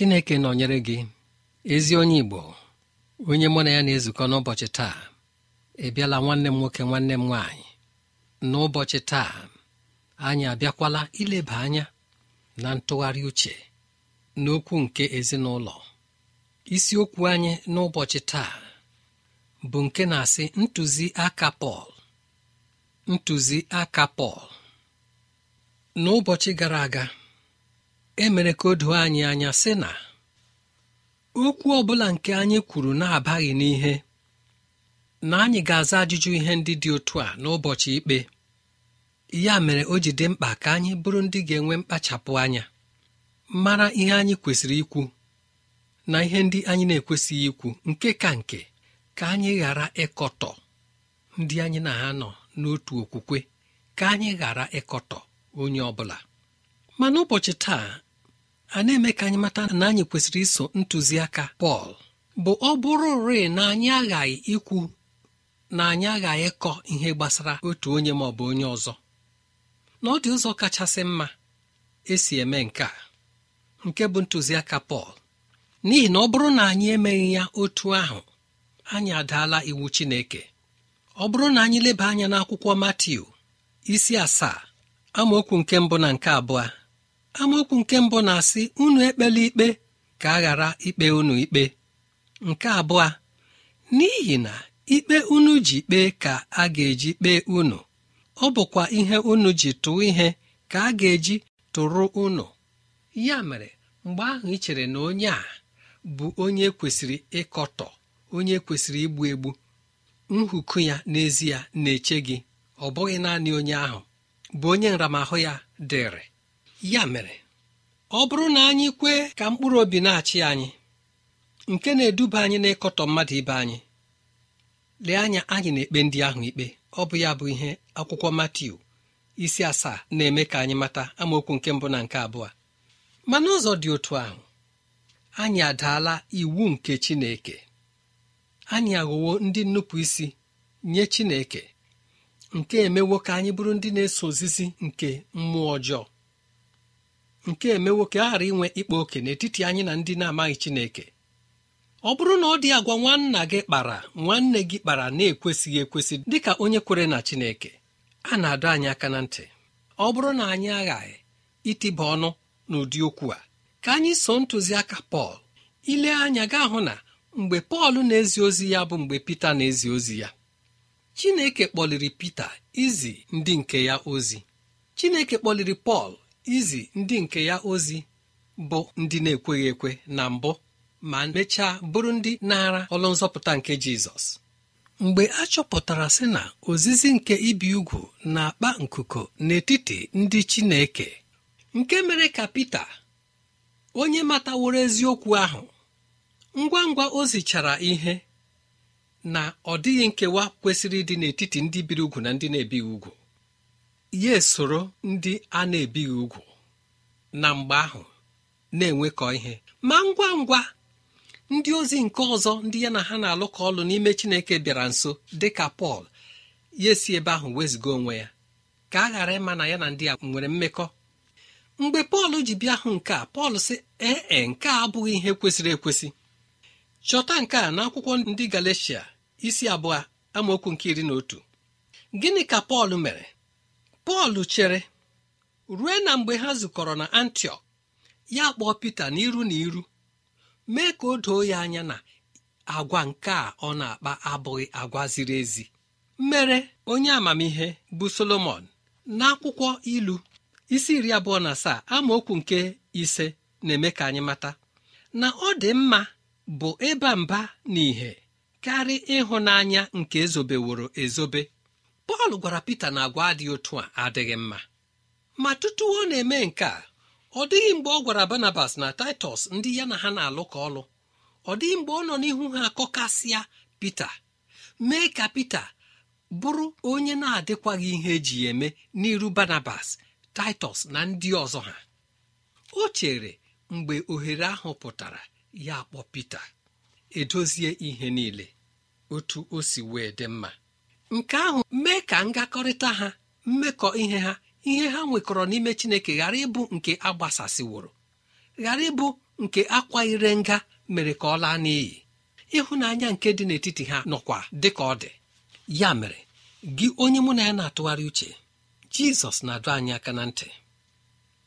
chineke nọnyere gị ezi onye igbo onye mụ na ya na-ezukọ n'ụbọchị taa ị nwanne m nwoke nwanne m nwaanyị n'ụbọchị taa anyị abịakwala ileba anya na ntụgharị uche n'okwu nke ezinụlọ isiokwu anyị n'ụbọchị taa bụ nke na-asị ntụziaka pọl aka pọl n'ụbọchị gara aga emere ka o doo anyị anya sị na okwu bụla nke anyị kwuru na-abaghị n'ihe na anyị ga-aza ajụjụ ihe ndị dị otu a n'ụbọchị ikpe ya mere o ji dị mkpa ka anyị bụrụ ndị ga-enwe mkpachapụ anya mara ihe anyị kwesịrị ikwu na ihe ndị anyị na-ekwesịghị ikwu nke ka nke ka anyị ghara ịkọtọ ndị anyị na ha nọ n'otu okwukwe ka anyị ghara ịkọtọ onye ọ bụla ma n'ụbọchị taa a na-eme ka anyị mata na anyị kwesịrị iso ntụziaka Pọl bụ ọ bụrụ rịị na anyị aghaghị ikwu na anyị aghaghị ịkọ ihe gbasara otu onye ma ọ bụ onye ọzọ na ọ dị ụzọ kachasị mma esi eme nke a nke bụ ntụziaka Pọl n'ihi na ọ bụrụ na anyị emeghị ya otu ahụ anyị adaala iwu Chineke ọ bụrụ na anyị leba anya n'akwụkwọ Matiu isi asaa amaokwu nke mbụ na nke abụọ amaokwu nke mbụ na-asị unu ekpela ikpe ka a ghara ikpe unu ikpe nke abụọ n'ihi na ikpe unu ji kpee ka a ga-eji kpee unu ọ bụkwa ihe unu ji tụọ ihe ka a ga-eji tụrụ unu ya mere mgbe ahụ ị chere na onye a bụ onye kwesịrị ịkọtọ onye kwesịrị igbu egbu nhụkụ ya n'ezie na-eche gị ọ bụghị naanị onye ahụ bụ onye nramahụ ya dịrị ya mere ọ bụrụ na anyị kwe ka mkpụrụ obi na-achị anyị nke na-eduba anyị n'ịkọtọ mmadụ ibe anyị lee anya anyị na-ekpe ndị ahụ ikpe ọ bụ ya bụ ihe akwụkwọ Matiu isi asaa na-eme ka anyị mata amaokwu nke mbụ na nke abụọ ma n'ụzọ dị otu ahụ anyị adaala iwu nke Chineke anyị aghọwo ndị nnupụ isi nye Chineke nke emewo ka anyị bụrụ ndị na-eso ozizi nke mmụọ ọjọọ nke emewo ka aghara inwe ịkpa oke n'etiti anyị na ndị na-amaghị Chineke ọ bụrụ na ọ dị agwa nwanna gị kpara nwanne gị kpara na-ekwesịghị ekwesị dịka onye kwere na Chineke a na-adọ anyị aka na ntị ọ bụrụ na anyị aghaghị itiba ọnụ n'ụdị okwu a ka anyị so ntụziaka Pọl ile anya gaa hụ na mgbe Pọl na-ezi ozi ya bụ mgbe Pita na-ezi ozi ya Chineke kpọliri Pita izi ndị nke ya ozi Chineke kpọliri Pọl izi ndị nke ya ozi bụ ndị na-ekweghị ekwe na mbụ ma mechaa bụrụ ndị na-ara ọlụ nzọpụta nke jizọs mgbe a chọpụtara sị na ozizi nke ibi ugwu na-akpa nkuku n'etiti ndị chineke nke mere ka pita onye mataworo eziokwu ahụ ngwa ngwa o zichara ihe na ọ dịghị nkewa kwesịrị ịdị n'etiti ndị biri ugwu na ndị na-ebighị ugwu ya esoro ndị a na-ebighị ugwu na mgbe ahụ na-enwekọ ihe ma ngwa ngwa ndị ozi nke ọzọ ndị ya na ha na-alụkọ ọlụ n'ime chineke bịara nso dị ka pọl ya esi ebe ahụ wezụga onwe ya ka a ghara ịma na ya na ndị a nwere mmekọ mgbe pọl ji bịa hụ nke a pọl sị ee e, nke a abụghị ihe kwesịrị ekwesị chọta nke a n'akwụkwọ ndị galatia isi abụọ amaokwu nke iri na otu gịnị ka pọl mere pọl chere rue na mgbe ha zukọrọ na antiọk ya kpọọ pita n'iru na iru mee ka o doo ya anya na agwa nke a ọ na-akpa abụghị agwa ziri ezi mere onye amamihe bụ solomon n'akwụkwọ ilu isi iri abụọ na asaa amaokwu nke ise na-eme ka anyị mata na ọ dị mma bụ ịba mba na ìhè karịa ịhụnanya nke ezobeworo ezobe pọl gwara pita na agwa adịghị otu a adịghị mma ma tutu ọ na-eme nke a ọ dịghị mgbe ọ gwara barnabas na taịtọs ndị ya na ha na-alụ ka ọlụ ọ dịghị mgbe ọ nọ n'ihu ha akọkasịa pita mee ka pita bụrụ onye na-adịkwaghị ihe eji eme n'iru barnabas taịtọs na ndị ọzọ ha o chere mgbe ohere ahụ pụtara ya kpọ pita edozie ihe niile otu o si wee dị mma nke ahụ mee ka ngakọrịta ha mmekọ ihe ha ihe ha nwekọrọ n'ime chineke ghara ịbụ nke agbasasịworo ghara ịbụ nke akwa ire nga mere ka ọ laa n'iyi ịhụnanya nke dị n'etiti ha nọkwa dị ka ọ dị ya mere gị onye mụ na ya na-atụgharị uche jizọs na adụ anyị aka na ntị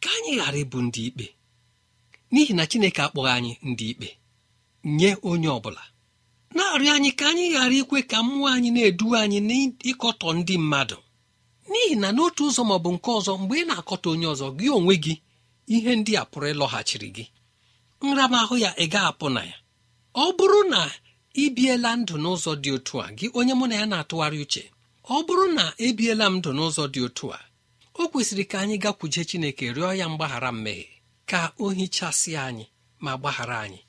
ka anyị ghara ịbụ ndị ikpe n'ihi na chineke akpọghị anyị ndị ikpe nye onye ọ bụla na-arịọ anyị ka anyị ghara ikwe ka mmụọ anyị na-eduwe anyị n'ịkọtọ ndị mmadụ n'ihi na n'otu ụzọ ma ọ bụ nke ọzọ mgbe ị na-akọta onye ọzọ gị onwe gị ihe ndị a pụrụ ịlọghachiri gị nramahụ ya ị ga-apụ na ya ọ bụrụ na ị biela ndụ n'ụzọ dị otu a gị onye mụ na ya na-atụgharị uche ọ bụrụ na ebiela m ndụ n'ụzọ dị otu a o kwesịrị ka anyị gakwuje Chineke rịọ ya mgbaghara mmehie ka o hichasị anyị ma gbaghara anyị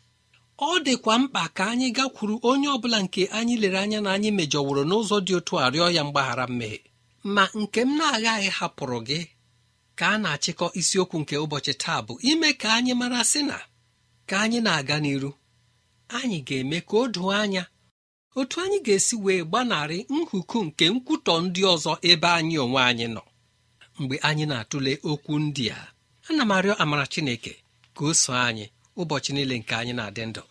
ọ dịkwa mkpa ka anyị gakwuru onye ọbụla nke anyị lere anya na anyị mejọworo n'ụzọ dị otu a rịọ ya mgbaghara mmehie ma nke m na-agaghị hapụrụ gị ka a na-achịkọ isiokwu nke ụbọchị taa bụ ime ka anyị mara sị na ka anyị na-aga n'iru anyị ga-eme ka o doo anya otu anyị ga-esi wee gbanarị nhuku nke nkwutọ ndị ọzọ ebe anyị onwe anyị nọ mgbe anyị na-atụle okwu ndị a ana m arịọ amara Chineke ka o so anyị ụbọchị niile nke anyị na-adị ndụ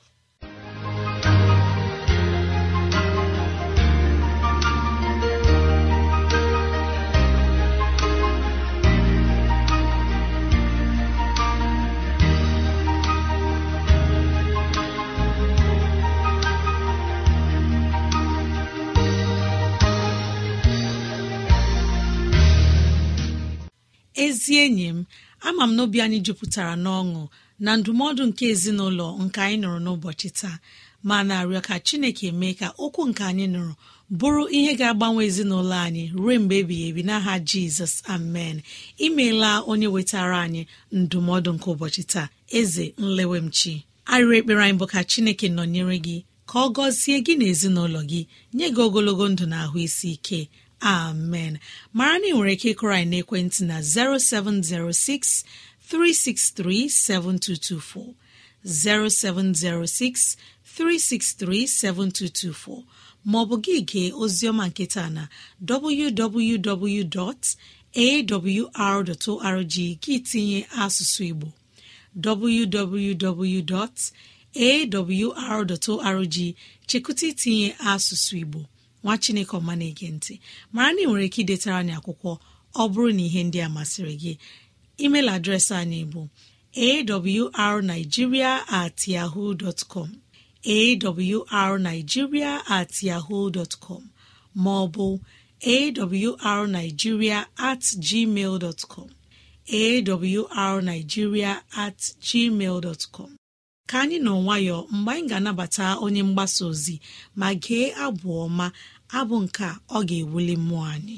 ezi enyi m ama m n'obi anyị jupụtara n'ọṅụ na ndụmọdụ nke ezinụlọ nke anyị nụrụ n'ụbọchị taa ma na-arịọ ka chineke mee ka okwu nke anyị nụrụ bụrụ ihe ga-agbanwe ezinụlọ anyị ruo mgbe ebighị ebi n'aha jizọs amen imeela onye wetara anyị ndụmọdụ nke ụbọchị taa eze nlewemchi arịrị ekpere anyị bụ ka chineke nọnyere gị ka ọ gọzie gị na ezinụlọ gị nye gị ogologo ndụ na ahụ isi ike amen mara na ị nwere ike ịkụrọ anyị n'ekwentị na 0706 363 7224 0706 363 7224 maọbụ gị gee oziọma nketa na www.awr.org gị tinye asụsụ Igbo www.awr.org chekụta tinye asụsụ Igbo nwa Chineke ọma na-ege ntị mara na nwere ike idetara n'akwụkwọ akwụkwọ ọ bụrụ na ihe ndị a masịrị gị email adreesị anyị bụ awrnigeria at yahoo com awrnigeria at yahoo com maọbụ awrnigeria at gmail dọtkọm awrnigeria at gmail dọtkọm ka anyị nọ nwayọọ mgbe anyị ga-anabata onye mgbasa ozi ma gee abụ ọma abụ nke ọ ga-ewuli mmụọ anyị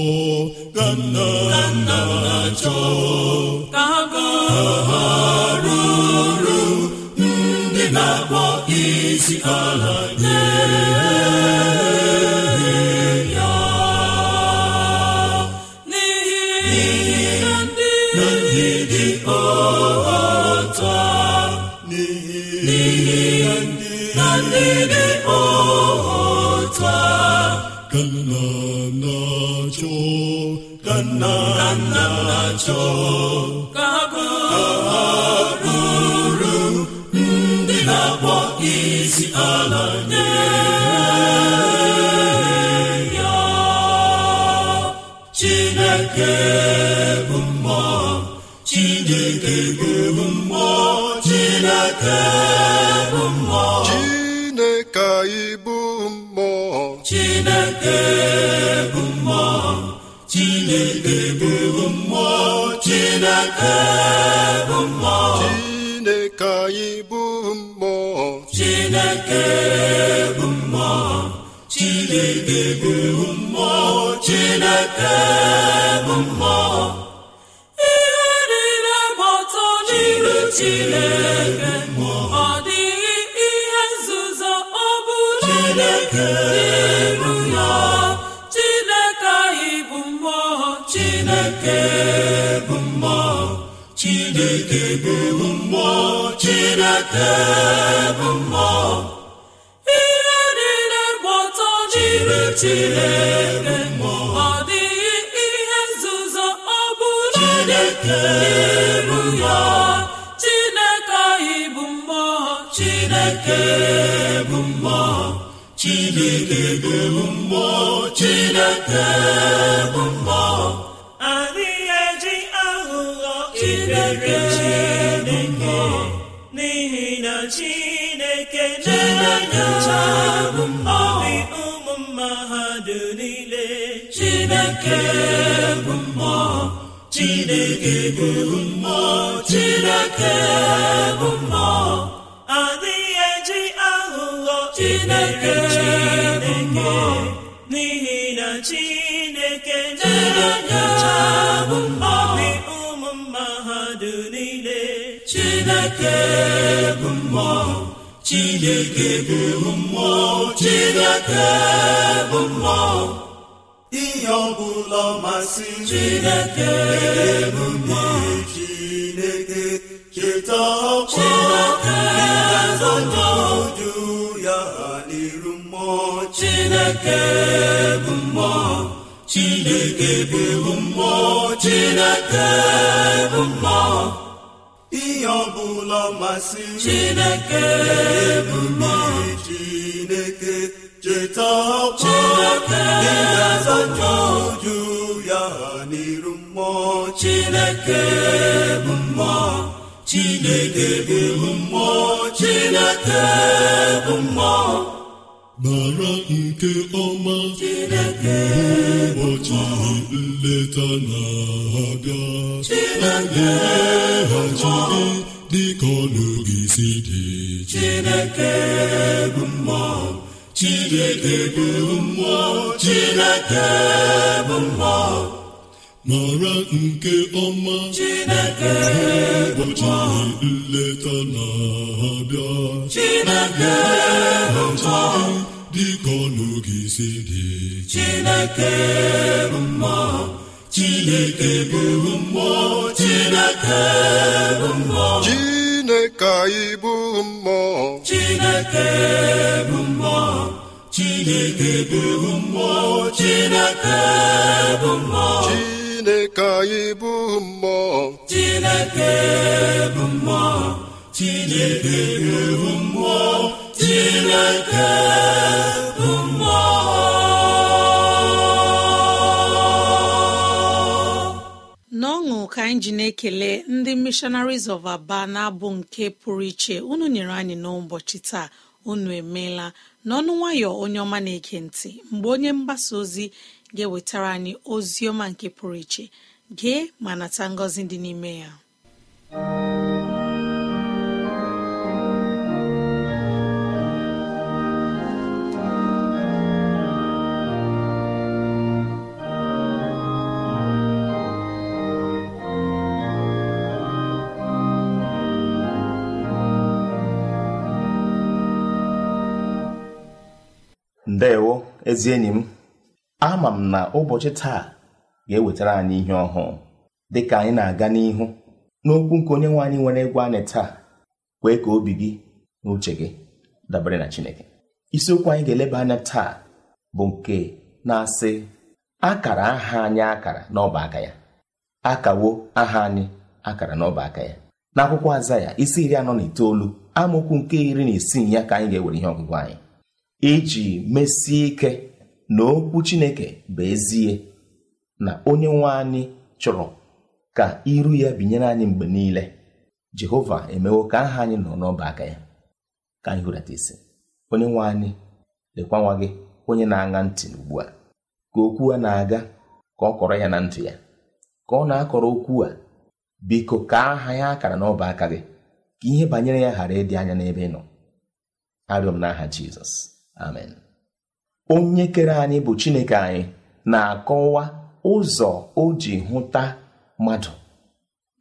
ka na-achọ ha ha ndị na-akpọ isi ala ka nna nna m na-achọ ka ha bụrụ ndị na-akpọ isi ala nye ya Chineke bụ mmụọ Chineke bụ mmụọ Chineke bụ mmụọ Chineke anyị bụ mmụọ Chineke bụ عذاب الله Chineke anyị bụ mmụọ Chineke bụ mmụọ Chineke bụ mmụọ Chineke bụ mmụọ ihe niile gba ọtọ n'iru Chineke ọ dịghị ihe nzuzo ọ bụla n'iru ya Chineke anyị bụ mmụọ Chineke ebe bụ mmụọ chineke bụ mmụọ ihe niile gba jiri chineke ọ dịghị ihe nzuzo ọ bụla chineke anyị bụ mmụọ chineke bụ mmụọ chineke bụ mmụọ chineke bụ mmụọ chineke na-enye obi ụmụ mmadụ niile chineke bụ mmụọ chineke bụ mmụọ chineke bụ mmụọ adịghị eji aghụghọ chineke chineke n'ihi na chineke na-enye mmụọ chineke bụ mmụọ chineke bụ mmụọ chineke bụ mmụọ ihe ọbụla masị chineke bụ mmụọ chineke cheta ọkwa ụju ya ha n'iru mmụọ chineke bụ mmụọ chineke bụ mmụọ chineke bụ mmụọ ihe ọbụla masị chineke ebubo chineke cheta ọkwa ị ga-azacha uju ya n'iru mmụọ chineke bụ mmụọ chineke bụ mmụọ chineke bụ mmụọ mara nke ọma mgbe ụbọchị nleta na-abịa na gị dịka si dị Chineke bụ mara nke ọma Chineke ụbọchị nleta na-abịa Chineke bụ dịka ọnụgị si dị Chineke bụ mmụọ Chineke bụ mmụọ Chineke bụ mmụọ Chineke anyị bụ mmụọ Chineke bụ mmụọ Chineke bụ mmụọ Chineke bụ mmụọ Chineke anyị bụ mmụọ Chineke bụ mmụọ Chineke bụ mmụọ Chineke ka anyị ji na-ekele ndị missionaries of aba na-abụ nke pụrụ iche unu nyere anyị n'ụbọchị taa unu emeela n'ọnụ nwayọ onye ọma na-ege ntị mgbe onye mgbasa ozi ga-ewetara anyị ozi ọma nke pụrụ iche gee ma nata ngọzi dị n'ime ya ndewo ezi enyi m ama m na ụbọchị taa ga-ewetara anyị ihe ọhụụ dịka anyị na-aga n'ihu n'okwu nke onye nwe anyị nwere egwu anyị taa kwee ka obi gị na uche gị dabere na Chineke isiokwu anyị ga-eleba anya taa bụ nke na-asị akara aha anyị akara n'ọba aka ya akawo aha anyị akara n'ọba ya n'akwụkwọ aza ya isi iri anọ na itoolu amaokwu nke iri na isii ya ka anyị ga-ewere ihe ọgụgụ anyị iji mesie ike na okwu chineke bụ ezie na onye nwe anyị chọrọ ka iru ya binyere anyị mgbe niile jehova emewo ka aha anyị nọ n'ọba aka ya ka anyị hụrata isi onye nwe anyị lekwa nwa gị onye na-aṅa ntị ugbu a ka okwu a na-aga ka ọ kọrọ ya na ntị ya ka ọ na-akọrọ okwu a biko ka aha ya akara n'ọba aka gị ka ihe banyere ya ghara ịdị anya n'ebe ị nọ arịọ m n'aha jizọs amen onye kere anyị bụ chineke anyị na-akọwa ụzọ o ji hụta mmadụ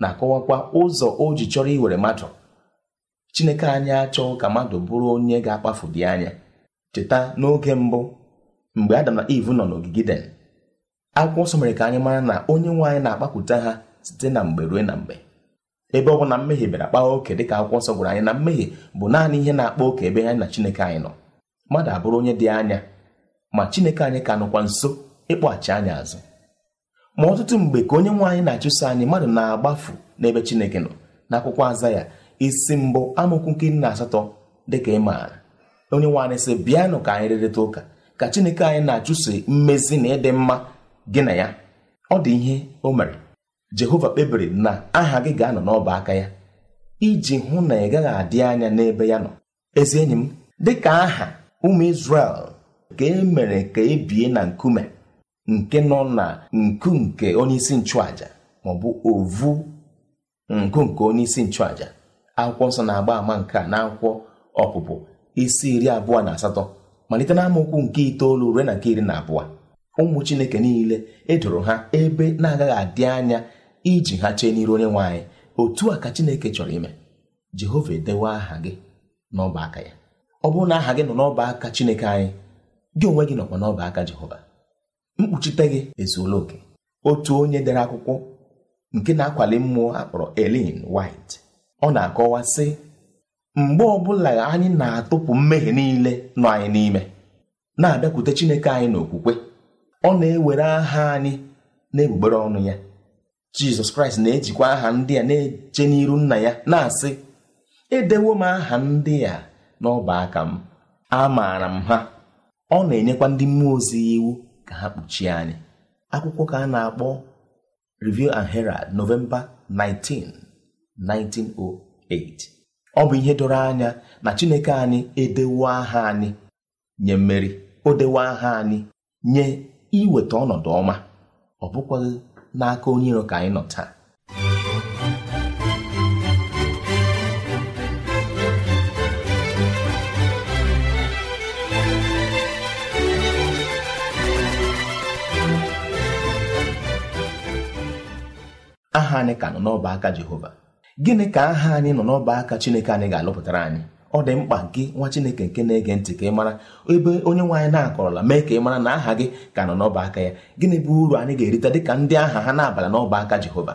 na-akọwakwa ụzọ o ji chọrọ iwere mmadụ chineke anyị achọ ka mmadụ bụrụ onye ga-akpafu dị anya cheta n'oge mbụ mgbe adam na iv nọ n'ogige den akwụkwọ nsọ mere ka anyị mara na onye nwe anyị na-akpapụta ha site na mgbe ruo na mgbe ebe ọ bụ na mmehie bịara kpaa oke dịka akwụkwọ nsọ gwara anyị na mmehie bụ naanị ihe na-akpa oke ebe anyị na chineke anyị nọ mmadụ abụrụ onye dị anya ma chineke anyị ka nụkwa nso ịkpọghachi anyị azụ ma ọtụtụ mgbe ka onye nwe anyị na-achụso anyị mmadụ na-agbafu n'ebe chineke nọ n'akwụkwọ aza ya isi mbụ amaokwu nke nna asatọ dịka ị maara onye nwe anyị sị bịanụ ka anyị rịrịta ụka ka chineke anyị na-achụso mmezi na ịdị mma gị na ya ọ dị ihe o mere jehova kpebiri na aha gị ga-anọ n'ọba aka ya iji hụ na ị gaghị adị anya n'ebe ya nọ ezi enyi m dịka aha ụmụ isrel ka e mere ka e bie na nkume nke nọ na nku nke onyeisi nchụaja maọbụ ovu nkụ nke onyeisi nchụaja akwụkwọ nsọ na-agba ama nke a n'akwụkwọ ọpụpụ isi iri abụọ na asatọ malite na nke itoolu ruo na nke iri na abụọ ụmụ Chineke niile edoro ha ebe na-agaghị adị anya iji ha chee n'iru onye nwe anyị otu a ka Chineke chọrọ ime Jehova edewe aha gị n'ọba aka ya ọ bụrụ na aha gị nọ n'ọba aka Chineke anyị gị onwe gị nọkwa n'ọba aka Jehova mkpuchite gị ezuola oke otu onye dere akwụkwọ nke na-akwali mmụọ akpọrọ Ellen White ọ na-akọwa sị mgbe ọbụla anyị na-atụpụ mmehie niile nọ anyị n'ime na-abịakwute Chineke anyị n'okwukwe ọ na-ewere aha anyị na ọnụ ya Jizọs Kraịst na-ejikwa aha ndị a na-eche n'iru nna ya na-asị edewo m aha ndị a n'ọba aka m maara m ha ọ na-enyekwa ndị mmụọ ozi iwu ka ha kpuchie anyị akwụkwọ ka a na-akpọ Review and Herald Novemba 19 1908 ọ bụ ihe doro anya na Chineke anyị edewo aha anyị nye mmeri o dewo aha anyị nye iweta ọnọdụ ọma ọ bụkwaghị n'aka onye iro ka anyị nọ taa aha anyị ka nọ n'ọba aka jehova gịnị ka aha anyị nọ n'ọba aka chineke anyị ga-alụpụtara anyị ọ dị mkpa gị nwa chineke nke na-ege ntị ka ị mara ebe onye nwe anyị na-akọrọla mee ka ị mara na aha gị ka nọ n'ọba aka ya gịnị bụ uru anyị ga-erite ka ndị aha ha na-abala n'ọba aka jehova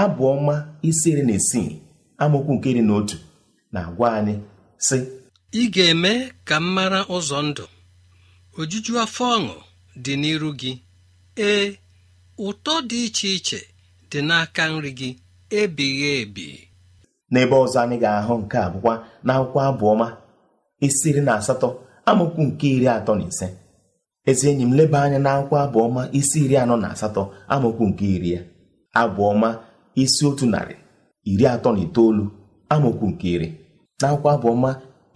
abụọma ọma isi iri na isii amaokwu nke iri na otu na-agwa anyị sị ị ga-eme ka m mara ụzọ ndụ ojuju afọ ọṅụ dị n'iru gị ee ụtọ dị iche iche dị n'aka nri gị ebighị ebi n'ebe ọzọ anyị ga-ahụ nke abụkwa na akwụkwọ abụọma isiri na asatọ amaokwu nke iri atọ na ise ezi enyi m leba anya na akwụkwọ abụọma isi iri anọ na asatọ amaokwu nke iri ya abụọma isi otu narị iri atọ na itoolu amaokwu nke iri na akwụkwọ abụọma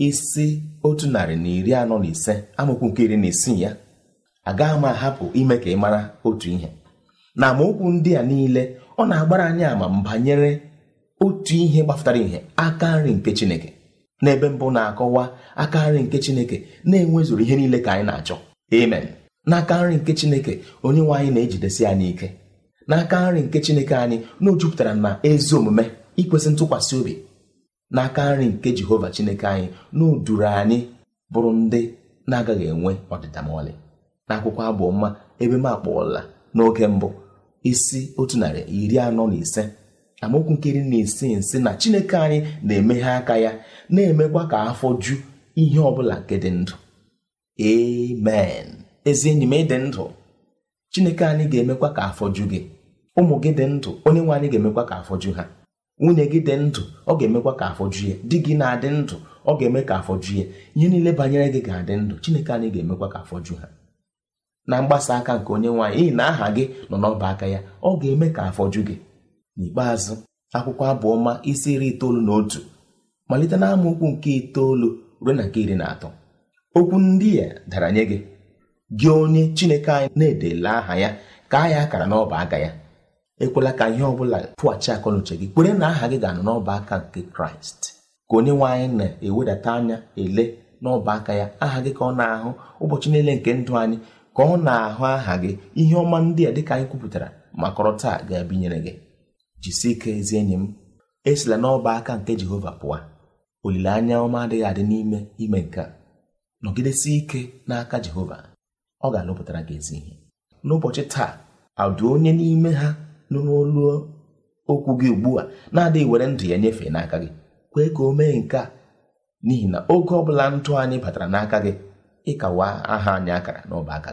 isi otu narị na iri anọ na ise amaokwu nke iri na isii ya agaghị m ahapụ ime ka ị mara otu ihe na amaokwu ndị a niile ọ na-agbara anyị ama banyere otu ihe gbapụtara ihe aka nri nke Chineke n'ebe mbụ na-akọwa aka nri nke Chineke na-enwezuru ihe niile ka anyị na-achọ amen n'aka nri nke Chineke onye nwe anyị na-ejidesi anyị ike n'aka nri nke Chineke anyị na o jupụtara na ezi omume ikwesị ntụkwasị obi n'aka nri nke Jehova Chineke anyị na o duru anyị bụrụ ndị na-agaghị enwe ọdịda ma ọlị n'akwụkwọ abụ mma ebe m akpọọla n'oge mbụ isi otu narị iri anọ na ise amaokwu nkiri na isi nsi na chineke anyị na-emeghe aka ya na-emekwa ka afọ ju ihe ọbụla nke dị ndụ amen ezi enyi m ịdị ndụ chineke anyị ga-emekwa ka afọ ju gị ụmụ gị dị ndụ onye nwe anyị ga-emekwa ka afọ ju ha nwunye gị dị ndụ ọ ga-emekwa ka afọ ju ya di gị na-adị ndụ ọ ga-eme ka afọ ju ya ihe niile banyere gị ga-adị ndụ chineke anyị ga-emekwa ka afọ ju ha na mgbasa aka nke onye nwaanyị n'ihi na aha gị nọ n'ọba aka ya ọ ga-eme ka afọju gị n'ikpeazụ akwụkwọ abụọma isi iri itoolu na otu malite na nke itoolu ruo na nke iri na atọ okwu ndị a dara nye gị gị onye Chineke anyị na-edela aha ya ka ya akara n'ọba aka ya ekwela ka ihe ọ bụla pụghachi akọnuche gị kwere na aha gị ga-anọ n'ọba aka nke Kraịst ka onye nwanyị na-ewedata anya ele n'ọba aka ya aha gị ka ọ na-ahụ ụbọchị niile nke ndụ anyị ka ọ na-ahụ aha gị ihe ọma ndị a dịka anyị kwupụtara ma kọrọ taa ga-ebinyere gị jisi ike ezi enyi m esila n'ọba aka nke jehova pụọ olileanya ọma adịghị adị n'ime ime nke a nọgidesie ike n'aka jehova ọ ga-alụpụtara gị ezi ihe n'ụbọchị taa adụ onye n'ime ha nọ n'olu okwu gị ugbu a na-adịghị were ndụ ya nyefee n'aka gị kwee ka o mee nke a n'ihi na oge ọ bụla ndụ anyị batara n'aka gị ịkawa aha anyị akara n'ọba aka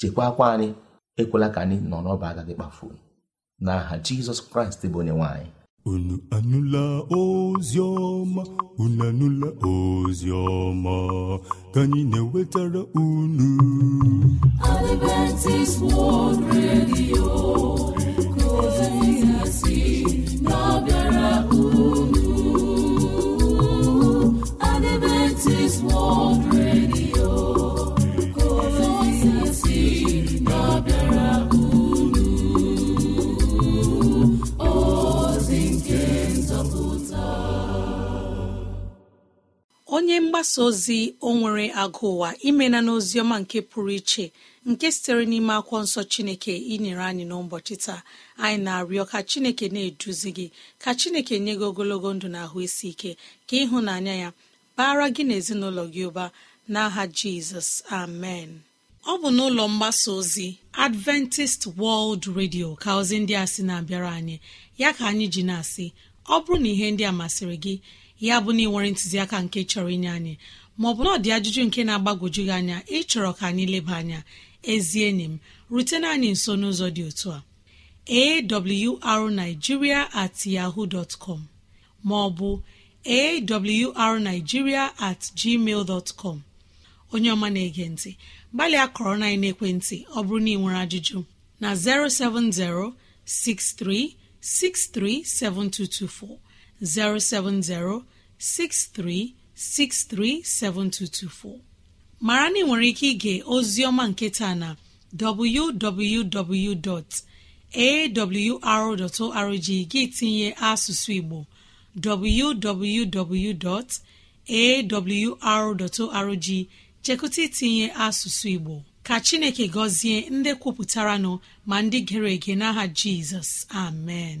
chekwaa akwa anyị ekwela ka anyị nọ n'ọba aka gị kpafuo n'aha jizọs kraịst bụ onye nwanyị unu anụla ozi ọma unu anụla ozi ka anyị na-ewetara unu mgbasa ozi o nwere agụ ụwa imena ọma nke pụrụ iche nke sitere n'ime akwụkwọ nsọ chineke inyere anyị n'ụbọchị taa anyị na-arịọ ka chineke na-eduzi gị ka chineke nye gị ogologo ndụ na ahụ isi ike ka ịhụnanya ya bara gị na ezinụlọ gị ụba n'aha jizọs amen ọ bụ n'ụlọ mgbasa ozi adventist world radio ka ozi ndị a sị na-abịara anyị ya ka anyị ji na-asị ọ bụrụ na ihe ndị a masịrị gị ya bụ na ị nwere ntụziaka nke chọrọ inye anyị maọbụ na ọ dị ajụjụ nke na-agbagwoju gị anya ịchọrọ ka anyị leba anya ezie enyi m rutena anyị nso n'ụzọ dị otu a awrnigeria at yaho dot com maọbụ arigiria at gmail com onye ọma na-ege ntị gbalịa kọrọ na ekwentị ọ bụrụ na ị nwere ajụjụ na 070 6363 7224. 07063637224 mara na ị nwere ike ige ozioma nketa na www.awr.org gị tinye asụsụ Igbo www.awr.org chekụta itinye asụsụ Igbo ka Chineke gọzie ndị kwupụtara nọ ma ndị gere ege n'aha Jizọs amen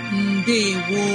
ndewo